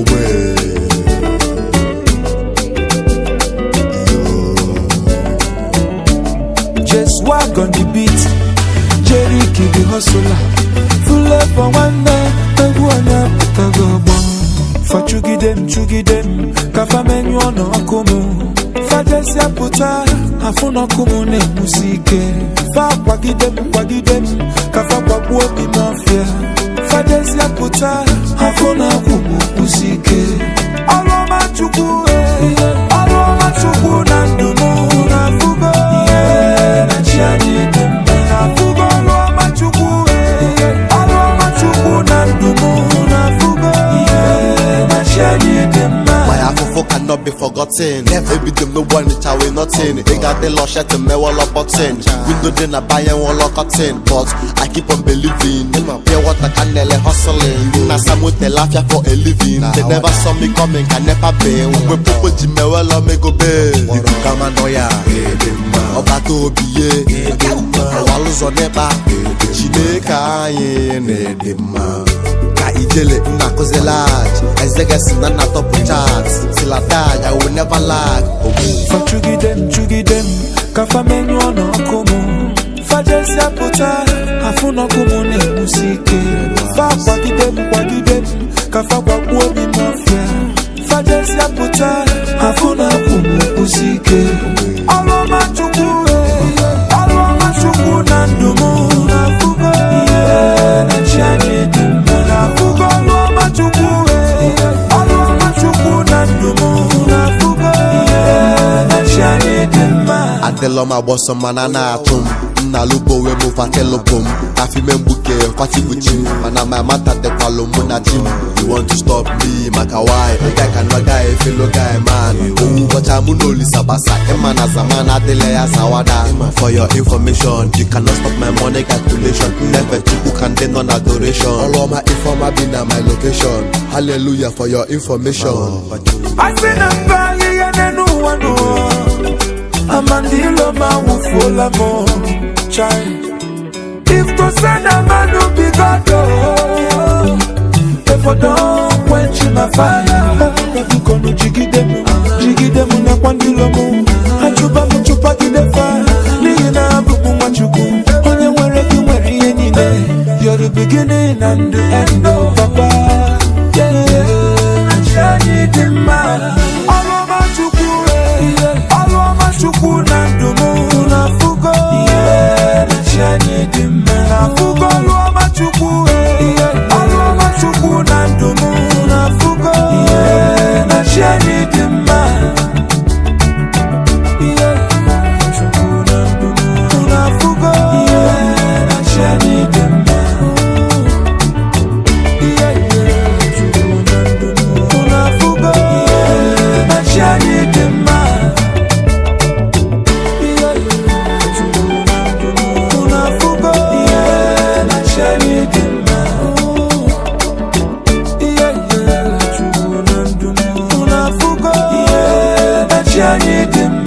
away. Just walk on the beat. Jerry Kid the hustler. Full up for one night. Naguana Putagabo. Fachugidem, chugidem. Kafamenyo no akumu. Fajesia puta. Afuna kumune musike. Fa kwagidem, kwagidem. Kafa kwagwo bimafia. Fajesia puta. not be forgotten. Ebi dem no wan it away nothing. Bigger they lost shit and me wall up button. Window then I buy and wall up But I keep on believing. Pure water can nele hustling. Na some with the laugh for a living. They never saw me coming, can never be. We pupo di me well up me go be. Iku kama noya. Ọba tó bíyé. Àwa ló sọ nípa. Chineke ayé ní èdè mọ́ na ijele nna kụzilag ezegesi na nna top chat silatag I will never lag fachugide m chugide m ka famenyụọ n'ọkụ m fajesi apụta afụ n'ọkụ m na-egbusi ike fa kwagide m kwagide m ka fa gbagbuo obi mafia fajesi apụta afụ na-apụ m egbusi ike Delo ma boso mana na atum Na lupo we mu fatelo bum Afi men buke fati buchim Mana my mata de kwalo muna jim You want to stop me maka why Guy can no guy fellow guy man I'm munoli sabasa Emana zamana dele ya sawada For your information You cannot stop my money calculation Never to who can then on adoration All of my informer been at my location Hallelujah for your information I see say mandilo mawufola mo oh, chai if tosana manu bigado efodon kwenchi na faya kadukono jigidemu jigidemu na kwandilomu achuba muchupagide faya n'ihi na abụbụ nwachukwu onye nwere gị nwere na. You're the beginning and the end of oh, papa yeah, yeah. anyị dị mma dị mma na afụgo ọma chukwu Hançer yedim